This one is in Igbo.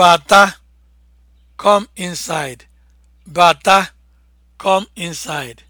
Bata, come inside. Bata, come inside.